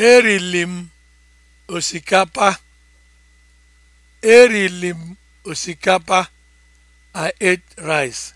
erili m osikapa. osikapa. I ate rice.